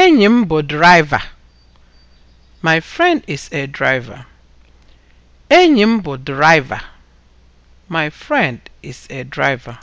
Enyi m bụ draịva. My friend is a driver. My friend is a driver.